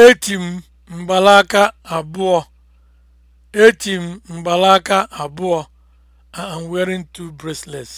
Eti m mgbalaka abụọ. Eti m mgbalaka abụọ. I wearing two bracelets.